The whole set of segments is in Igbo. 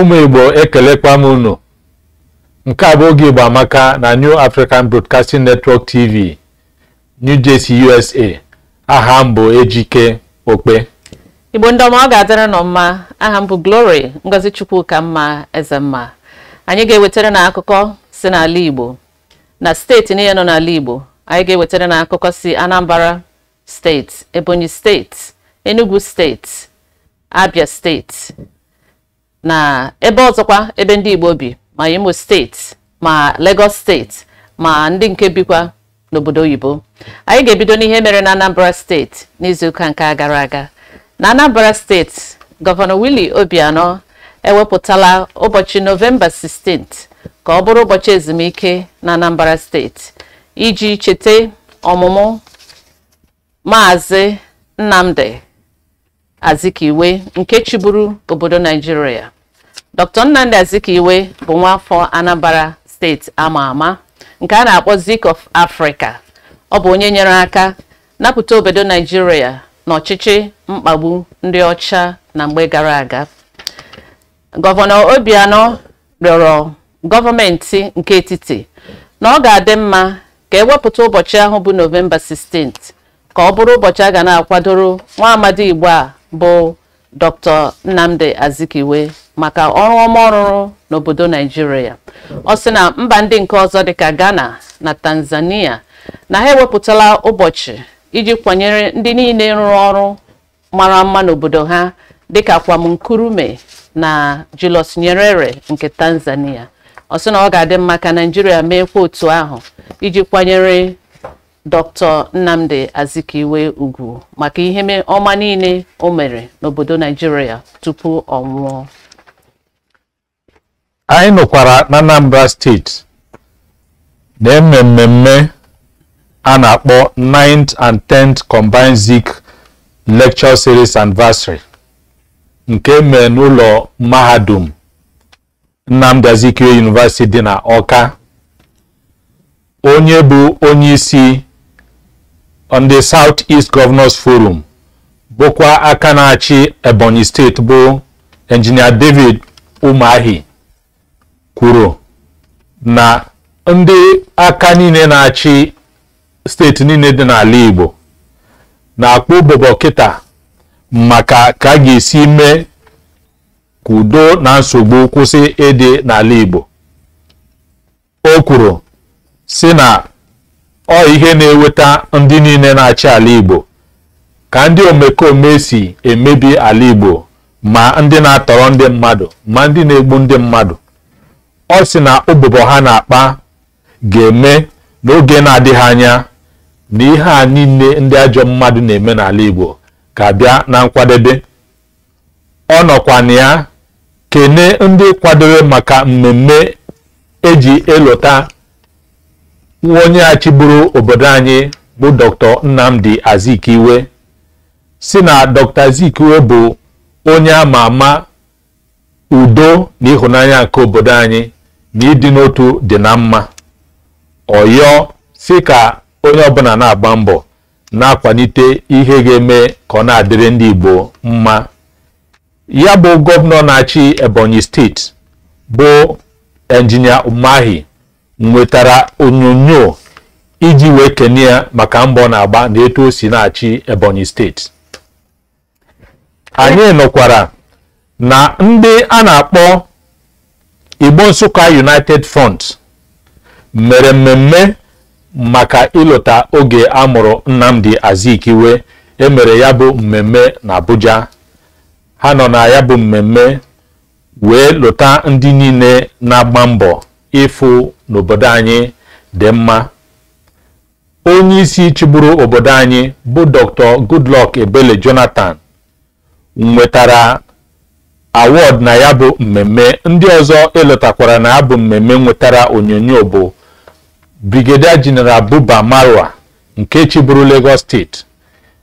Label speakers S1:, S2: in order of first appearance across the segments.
S1: ụmụ igbo ekelekwa m unu nke a bụ oge igbo amaka na new african broadcasting network tv new jersey usa aha m ejike okpe
S2: igbo ndị ọma ọ ga-adịrị nọ mma aha mbụ glory ngozi chukwu ka mma eze mma anyị ga-ewetara na akụkọ si n'ala igbo na steeti niile nọ n'ala igbo anyị ga-ewetara na akụkọ si anambra steeti ebonyi steeti enugu steeti abia steeti na ebe ọzọkwa ebe ndị Igbo bi ma Imo steeti ma Lagos steeti ma ndị nke bikwa n'obodo oyibo anyị ga-ebido n'ihe mere na Anambra steeti n'izuụka nke gara aga na Anambra steeti gọvanọ Willie Obianọ ewepụtala ụbọchị novemba 16 ka ọ bụrụ ụbọchị ezumike na Anambra steeti iji cheta ọmụmụ Maazị Nnamdi Azikiwe nke chiburu obodo Naijiria Dr. Nnamdi Azikiwe bụ nwaafọ anambara steeti ama ama nke a na-akpọ Zik of Africa ọ bụ onye nyere aka napụta obodo Naijiria n'ọchịchị mkpagbu ndị ọcha na mgbe gara aga gọvanọ Obianọ rịọrọ gọọmenti nke etiti na ọ ga-adị mma ka ewepụta ụbọchị ahụ bụ novemba 16 ka ọ bụrụ ụbọchị a ga na-akwadoro nwa amadi Igbo a bụ Dr. Nnamdi Azikiwe maka ọrụ ọma ọrụrụ n'obodo Naijiria ọ sị na mba ndị nke ọzọ dịka Ghana na Tanzania na ha ewepụtala ụbọchị iji kwanyere ndị niile rụrụ ọrụ mara mma n'obodo ha dịka Kwamnkrumah na Julius Nyerere nke Tanzania ọ sị na ọ ga-adị mma ka Naijiria meekwa otu ahụ iji kwanyere Dr. Nnamdi Azikiwe Ugwu maka ihe ọma niile o mere n'obodo Naijiria tupu ọ nwụọ
S1: anyị nụkwara na Anambra steeti na-eme mmemme a na-akpọ 9th and 10th Combined Zik Lecture Series Anniversary nke e mee n'ụlọ mahadum Nnamdi Azikiwe University dị na Ọka onye bụ onyeisi. on the Southeast Governors Forum bụkwa aka na-achị Ebonyi steeti bụ enjinia David Umahi kwuru na ndị aka niile na-achị steeti niile dị n'ala Igbo na akpọ bobo kịta maka ka a ga-esi mee ka na nsogbu kwụsị ịdị n'ala Igbo o kwuru si na ọ ihe na-eweta ndị niile na-achị ala Igbo ka ndị omekome si emebi ala Igbo ma ndị na-atọrọ ndị mmadụ ma ndị na-egbu ndị mmadụ ọ sị na ụbụbọ ha na-akpa ga-eme n'oge na-adịghị anya na ihe a niile ndị ajọ mmadụ na-eme n'ala Igbo ga bịa na nkwadebe ọ nọkwa na ya kene ndị kwadebe maka mmemme eji elota nwa onye achịburu obodo anyị bụ dr nnamdi azikiwe si na dr azikiwe bụ onye ama ama udo na ịhụnanya nke obodo anyị na ịdị n'otu dị na mma ọyọ si ka onye ọbụla na-agba mbọ na-akwalite ihe ga-eme ka ọ na-adịrị ndị igbo mma ya bụ gọvanọ na-achị ebonyi steeti bụ enjinia umahi nwetara onyonyo iji wee kene ya maka mbọ na-agba na etu o si na-achị Ebonyi steeti anyị nọkwara na ndị a na-akpọ Igbo Nsụka United Front mere mmemme maka ịlụta oge a mụrụ Nnamdi Azikiwe emere ya bụ mmemme na Abuja ha nọ na ya bụ mmemme wee lụta ndị niile na-agba mbọ ịfụ n'obodo anyị dị mma onye isi chịburu obodo anyị bụ dr goodluck ebele jonathan nwetara awọd na ya bụ mmemme ndị ọzọ eletakwara na ya mmemme nwetara onyonyo bụ brigadier general buba marwa nke chịburu lagos steeti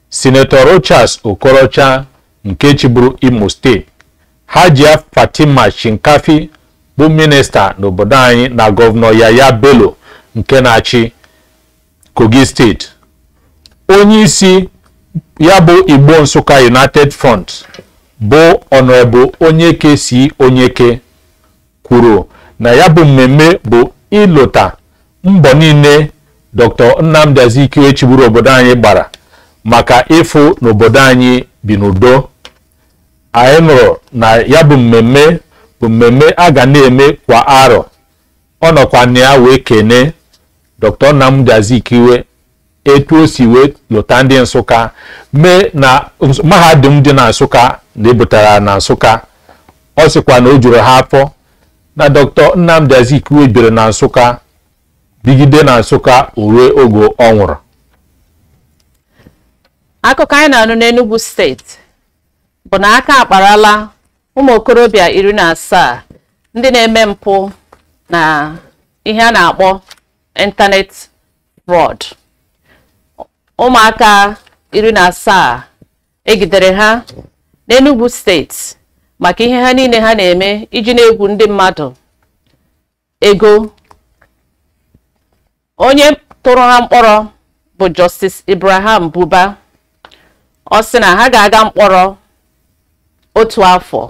S1: senator rochas okorocha nke chịburu imo steeti hajia fatima shinkafi bụ minista n'obodo anyị na gọvanọ Yaya Bello nke na-achị Kogi steeti onye isi ya bụ Igbo Nsụka United Front bụ onye Onyeke si Onyeke kwuru na ya bụ mmemme bụ ịlụta mbọ niile Dr. Nnamdi Azikiwe chiburu obodo anyị gbara maka ịfụ n'obodo anyị bi n'udo anyị nụrụ na ya bụ mmemme bụ mmemme a ga na-eme kwa arọ ọ nọkwa na ya wee kene Dr. Nnamdi Azikiwe etu o si wee lụta ndị Nsụka mee na mahadum dị na Nsụka na ebutara na Nsụka ọ sịkwa na o juru ha afọ na Dr. Nnamdi Azikiwe biri na Nsụka bigide na Nsụka ruo ogo ọ nwụrụ
S2: akụkọ anyị na n'Enugu steeti bụ na aka akparala ụmụ okorobịa iri na asaa ndị na-eme mpụ na ihe a na-akpọ ịntanetị fraud ụmụaka iri na asaa egidere ha n'enugwu steeti maka ihe ha niile ha na-eme iji na-egwu ndị mmadụ ego onye tụrụ ha mkpọrọ bụ Justice Ibrahim Buba ọ sị na ha ga-aga mkpọrọ otu afọ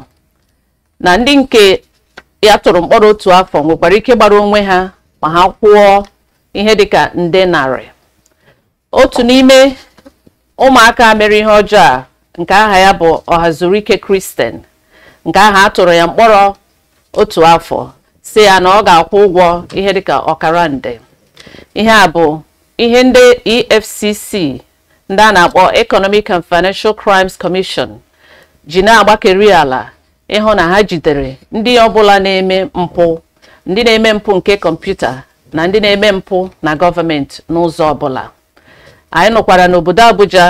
S2: na ndị nke ya tụrụ mkpọrọ otu afọ nwekwara ike gbara onwe ha ma ha kwụọ ihe dịka nde narị otu n'ime ụmụaka mere ihe ọjọọ a nke aha ya bụ Ọhazurike Kristen nke aha a tụrụ ya mkpọrọ otu afọ si ya na ọ ga-akwụ ụgwọ ihe dịka ọkara nde ihe a bụ ihe ndị EFCC ndị a na-akpọ Economic and Financial Crimes Commission ji na-agbakeri ala ịhụ na ha jidere ndị ọbụla na-eme mpụ ndị na-eme mpụ nke kọmputa na ndị na-eme mpụ na gọọmenti n'ụzọ ọbụla anyị nụkwara n'obodo Abuja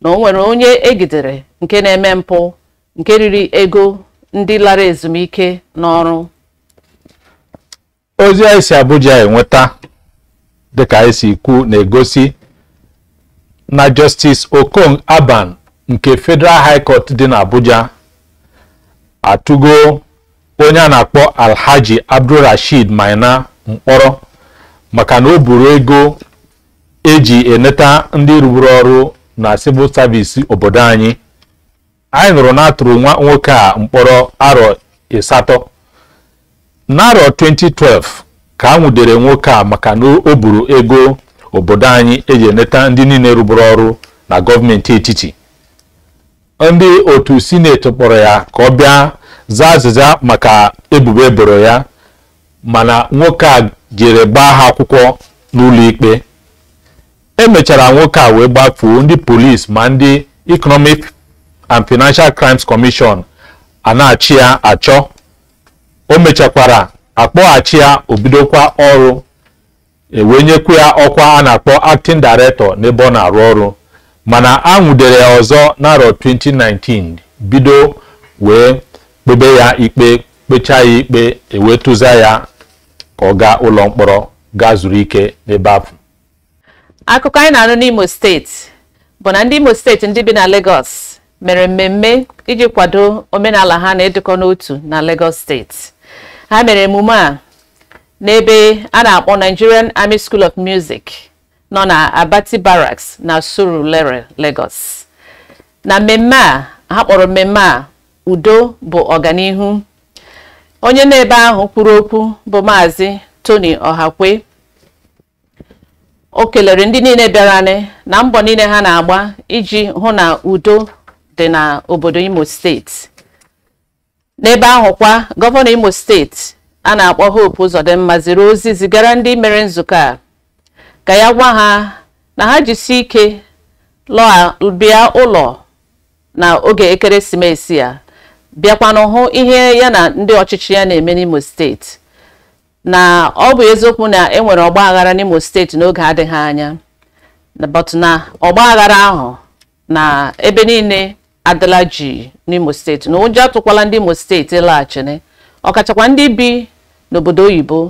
S2: na o nwere onye egidere nke na-eme mpụ nke riri ego ndị lara ezumike n'ọrụ
S1: ozi anyị si Abuja enweta dịka anyị e si ikwu na-egosi na Justice okong Aban nke Federal High dị na atụgo onye a na-akpọ alhaji rashid maina mkpọrọ maka na o buru ego eji eneta ndị rụrụ ọrụ na civil service obodo anyị anyị nụrụ na atụrụ nwa nwoke a mkpọrọ arọ ịsatọ n'arọ 2012 ka a nwudere nwoke a maka na o buru ego obodo anyị eji eneta ndị niile rụbụrụ ọrụ na gọọmenti etiti ndị otu sineti kpọrọ ya ka ọ bịa zaa azịza maka ebubo eboro ya mana nwoke a jere gbaa ha akwụkwọ n'ụlọ ikpe e mechara nwoke a wee gbafuo ndị polisi ma ndị economic and financial crimes commission a na-achị ya achọ o mechakwara akpọghachi ya obidokwa ọrụ ewenyekwu ya ọkwa a na-akpọ acting director n'ebe ọ na-arụ ọrụ mana a nwudere ya ọzọ n'arọ 2019 bido wee kpebe ya ikpe kpechaa ya ikpe ewetụza ya ka ọ gaa ụlọ mkpọrọ gaa zuru ike n'ebe ahụ
S2: akụkọ anyị na-anụ n'Imo steeti bụ na ndị Imo steeti ndị bi na Lagos mere mmemme iji kwado omenala ha na-edukọ n'otu na Lagos steeti ha mere emume a n'ebe a na-akpọ Nigerian Army School of Music nọ na Abati Barracks na Surulere Lagos na mmemme a ha kpọrọ mmemme a udo bụ ọganihu onye na-ebe ahụ kwuru okwu bụ maazi Tony ohakwe o kelere ndị niile bịaranị na mbọ niile ha na-agba iji hụ na udo dị na obodo Imo steeti n'ebe ahụ kwa gọvanọ Imo steeti a na-akpọ Hope ụzọdịmma ziri ozi zigara ndị mere nzukọ a ka ya gwa ha na ha jisie ike bịa ụlọ na oge ekeresimesi ya bịakwanụ hụ ihe ya na ndị ọchịchị ya na-eme n'Imo steeti na ọ bụ eziokwu na e nwere ọgba aghara n'Imo steeti n'oge adịghị anya but na ọgba aghara ahụ na ebe niile adịla ji n'Imo steeti na ụjọ atụkwala ndị Imo steeti laghachiri ọkachakwa ndị bi n'obodo oyibo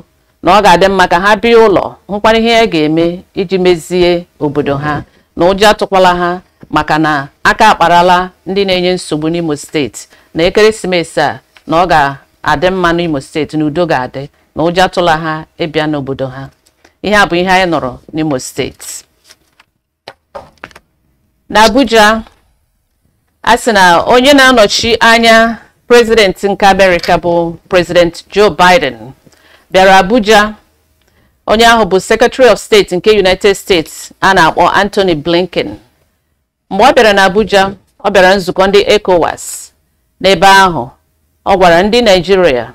S2: na ọ ga-adị mma ka ha bịa ụlọ hụkwara ihe ya ga-eme iji mezie obodo ha na ụjọ atụkwala ha maka na aka akparala ndị na-enye nsogbu n'Imo steeti na ekeresimesi a na ọ ga-adị mma n'Imo steeti na udo ga-adị na ụjọ atụla ha ịbịa n'obodo ha ihe a bụ ihe anyị nọrọ n'Imo steeti n'Abuja a sị na onye na-anọchi anya prezidenti nke Amerịka bụ prezidenti Joe Biden bịara abuja onye ahụ bụ secretary of state nke united states a na-akpọ anthony blinken mgbe ọ bịara na abuja ọ bịara nzukọ ndị ecowas n'ebe ahụ ọ gwara ndị naijiria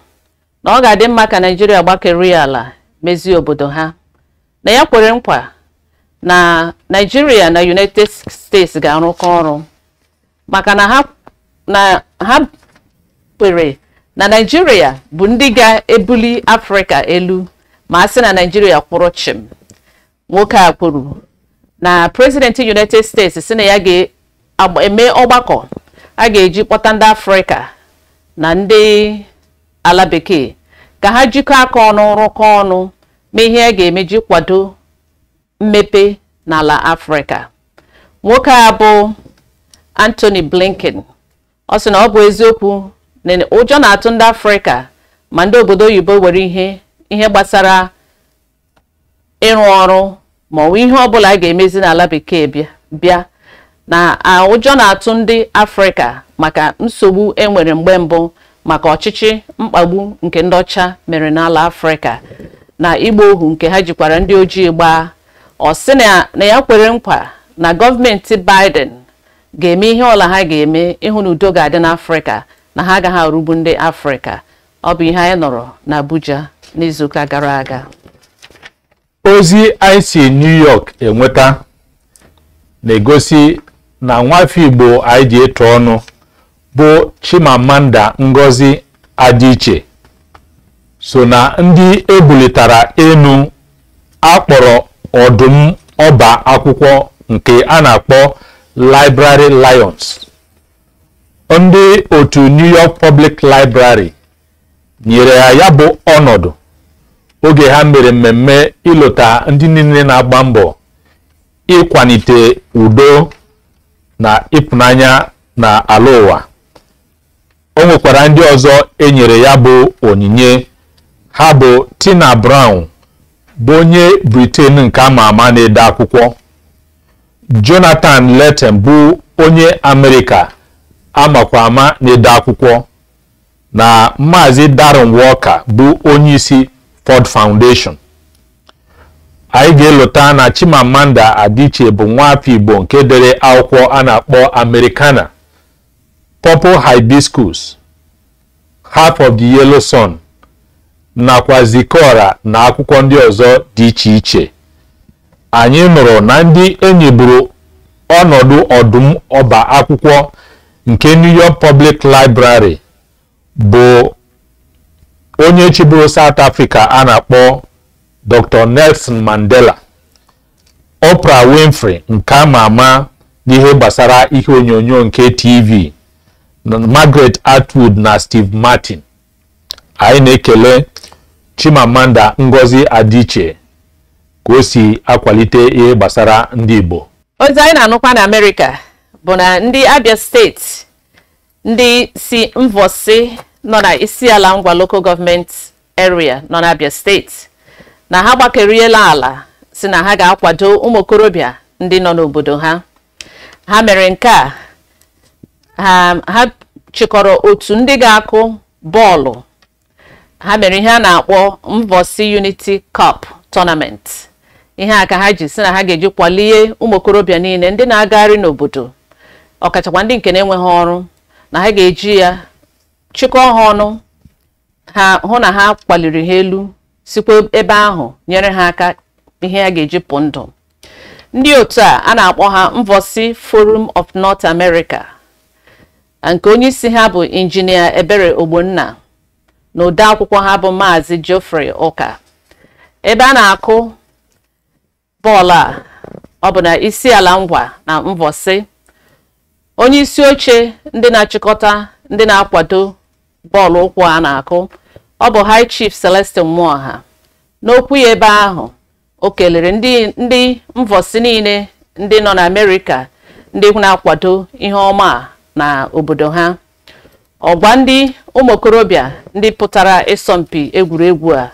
S2: na ọ ga-adị mma ka naijiria gbakerie ala mezie obodo ha na ya kwere nkwa na naijiria na united states ga-arụkọ ọrụ maka na ha kwere na naijiria bụ ndị ga-ebuli afrịka elu ma a sị na naijiria kwụrụ chim nwoke a kwuru na president united states sị na ya ga-eme ọgbakọ a ga-eji kpọta ndị afrịka na ndị ala bekee ka ha jikọọ aka ọnụ rụkọ ọnụ ma ihe a ga-emeji kwado mmepe n'ala afrịka nwoke a bụ anthony blinken ọ sị na ọ bụ eziokwu ụjọ na-atụ ndị afrịka ma ndị obodo oyibo were ihe ihe gbasara ịrụ ọrụ ma ọ bụ ihe ọbụla a ga-emezi n'ala bekee bịa na ụjọ na-atụ ndị afrịka maka nsogbu enwere mgbe mbụ maka ọchịchị mkpagbu nke ndị ọcha mere n'ala afrịka na ịgba ohu nke ha jikwara ndị ojii gbaa ọ sị na ya kwere nkwa na gọọmenti Biden ga-eme ihe ọla ha ga-eme ịhụ na udo ga-adị n'afrịka na ha agaghị arụgbu ndị afrịka ọ bụ ihe anyị nọrọ na abuja n'izuụka gara aga
S1: ozi ic new york enweta na-egosi na nwafọ igbo anyị ji ịtụ ọnụ bụ chimamanda ngozi adịiche so na ndị ebulitara elu akpọrọ ọdụm ọba akwụkwọ nke a na-akpọ library lions ndị otu New York Public Library nyere ya ya bụ ọnọdụ oge ha mere mmemme ịlụta ndị niile na-agba mbọ ịkwanite udo na ịpụnanya na ala ụwa o nwekwara ndị ọzọ enyere ya bụ onyinye ha bụ Tina Brown bụ onye briten nke ama ama na-ede akwụkwọ Jonathan letten bụ onye Amerịka amakwa ama na-ede akwụkwọ na maazi Darren Walker bụ onye isi Ford Foundation anyị ga-elota na Chimamanda adịche bụ afọ Igbo nke dere akwụkwọ a na-akpọ Americana Purple Hibiscus Half of the Yellow Sun nakwa Zikora na akwụkwọ ndị ọzọ dị iche iche anyị nụrụ na ndị enyi buru ọnọdụ ọdụm ọba akwụkwọ nke New York Public Library bụ onye chịburu South Africa a na-akpọ Dr. Nelson Mandela Oprah Winfrey nke ama ama n'ihe gbasara ihe onyonyo nke TV Margaret Atwood na Steve Martin anyị na-ekele Chimamanda Ngozi adịche ka o si akwalite ihe gbasara ndị Igbo
S2: ozi anyị na-anụkwa na Amerịka bụ na ndị abia steeti ndị si mvosi nọ na ala ngwa local gọọmenti area nọ na steeti na ha gbakeriela ala si na ha ga-akwado ụmụ okorobịa ndị nọ n'obodo ha ha mere nke a ha chịkọrọ otu ndị ga-akụ bọọlụ ha mere ihe a na-akpọ mvosi unity cup tournament ihe a ka ha ji si na ha ga-eji kwalie ụmụ okorobịa niile ndị na-agagharị n'obodo ọkachakwa ndị nke na-enweghị ọrụ na ha ga-eji ya chịkọọ ha ọnụ ha hụ na ha kpaliri ha elu sikwa ebe ahụ nyere ha aka ihe a ga-eji pụ ndụ ndị otu a a na-akpọ ha mvosi forum of north america nke onye isi ha bụ injinia ebere ogbonna na ode akwụkwọ ha bụ maazi geoffrey ụka ebe a na-akụ bọọlụ a ọ bụ na isi ngwa na mvosi onye isi oche ndị na-achịkọta ndị na-akwado bọọlụ ụkwụ a na-akụ ọ bụ high chief celestin Nwoha n'okwu ya ebe ahụ o kelere ndị ndị mvọsi niile ndị nọ n'amerịka ndị na-akwado ihe ọma na obodo ha ọgba ndị ụmụ okorobịa ndị pụtara ịsọmpi egwuregwu a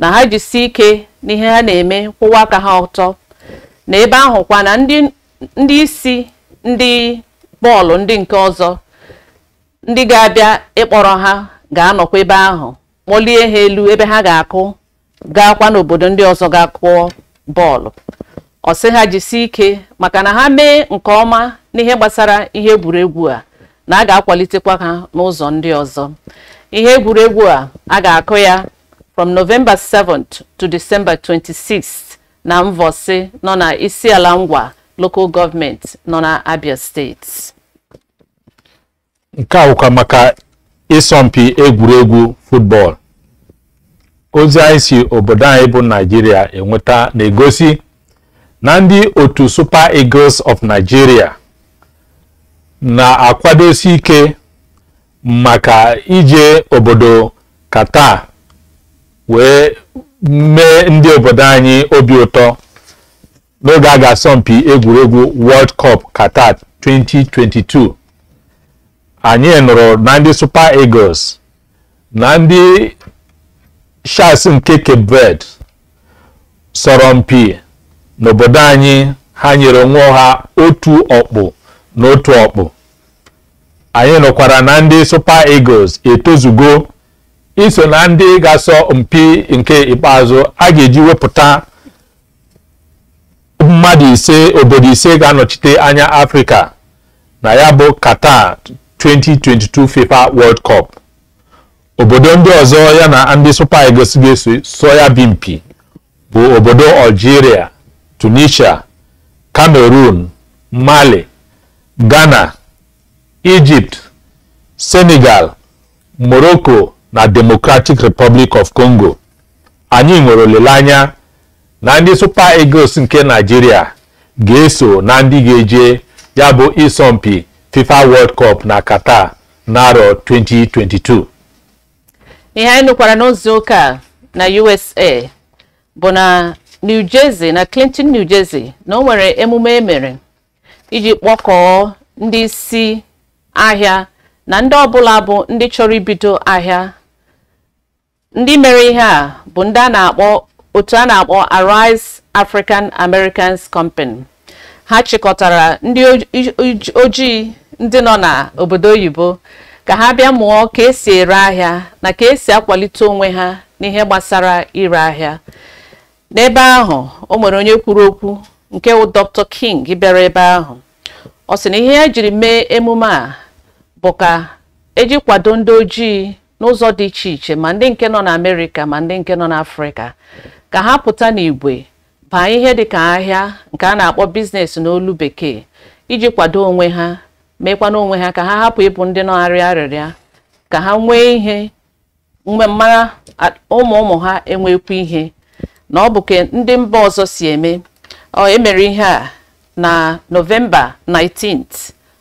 S2: na ha jisi ike n'ihe ha na-eme kwụwa aka ha ọtọ na ebe kwa na ndị isi ndị bọọlụ ndị nke ọzọ ndị ga-abịa ịkpọrọ ha ga-anọkwa ebe ahụ kpọlie ha elu ebe ha ga-akụ gaakwa n'obodo ndị ọzọ ga-akụọ bọọlụ ọ sị ha jisie ike maka na ha mee nke ọma n'ihe gbasara ihe egwuregwu a na a ga-akwalitekwa ha n'ụzọ ndị ọzọ ihe egwuregwu a a ga-akụ ya from November 7th to December 26 na Mvọsị nọ na isi ala ngwa local gọọmentị nọ na Abia steeti
S1: nke a maka ịsọmpi egwuregwu football ozi anyị si obodo anyị bụ Nigeria enweta na-egosi na ndị otu Super Eagles of Nigeria na-akwadosi ike maka ije obodo Qatar wee mee ndị obodo anyị obi ụtọ n'oge a ga-asọmpi egwuregwu World Cup Qatar 2022 anyị nụrụ na ndị Super Eagles na ndị Sharks nke Cape Verde sọrọ mpi n'obodo anyị ha nyere onwe ha otu ọkpụ na otu ọkpụ anyị nụkwara na ndị Super Eagles etozugo iso na ndị ga-asọ mpi nke ikpeazụ a ga-eji wepụta mmadụ ise obodo ise ga-anọchite anya afrịka na ya bụ qatar 2022 fifa world cup obodo ndị ọzọ ya na ndị supa eagles ga-eso bụ obodo algeria tunisia cameroon mali ghana egypt senegal morocco na democratic republic of congo anyị nwere olileanya na ndị Super Eagles nke Nigeria ga-eso na ndị ga-eje ya bụ ịsọmpi FIFA World Cup na Qatar n'arọ 2022
S2: ihe anyị nụkwara n'ozi ụka na USA bụ na New Jersey na Clinton New Jersey na o nwere emume emere iji kpọkọọ ndị isi ahịa na ndị ọbụla bụ ndị chọrọ ibido ahịa ndị mere ihe a bụ ndị a na-akpọ otu a na-akpọ Arise African Americans Company ha chịkọtara ndị ojii ndị nọ n'obodo oyibo ka ha bịa mụọ ka esi ere ahịa na ka esi akwalite onwe ha n'ihe gbasara ire ahịa n'ebe ahụ o nwere onye kwuru okwu nke wụ Dr. King bịara ebe ahụ ọ sị na ihe ya e jiri mee emume a bụ ka eji kwado ndị ojii n'ụzọ dị iche iche ma ndị nke nọ na amerika ma ndị nke nọ n'Afrịka ka ha pụta n'igwe baa ihe dịka ahịa nke a na-akpọ biznes n'olu bekee iji kwado onwe ha mekwana onwe ha ka ha hapụ ịbụ ndị nọgharị arịrịa ka ha nwee ihe mgbe mara ụmụ ụmụ ha enwekwu ihe na ọ bụ ka ndị mba ọzọ si eme ọ emere ihe a na novemba 19th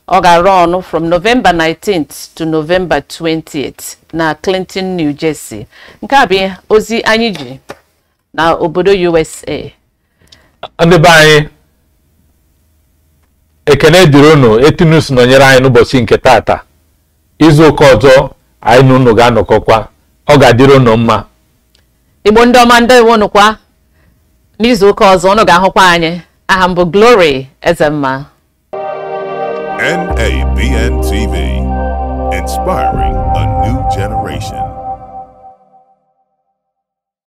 S2: ọ ga-arụ ọnụ from novemba 19th to novemba 20th na Clinton, New Jersey nke a bụ ozi anyị ji na obodo USA
S1: ndị be anyị ekene dịrị unu etinus nọnyere anyị n'ụbọchị nke tata izu ụka ọzọ anyị na unu ga-anọkọkwa ọ ga-adịrị unu mma
S2: igbo ndị ọma ndị iwu unu kwa n'izu ụka ọzọ unu ga-ahụkwa anyị aha m bụ glory ezemma NABN TV inspiring a new generation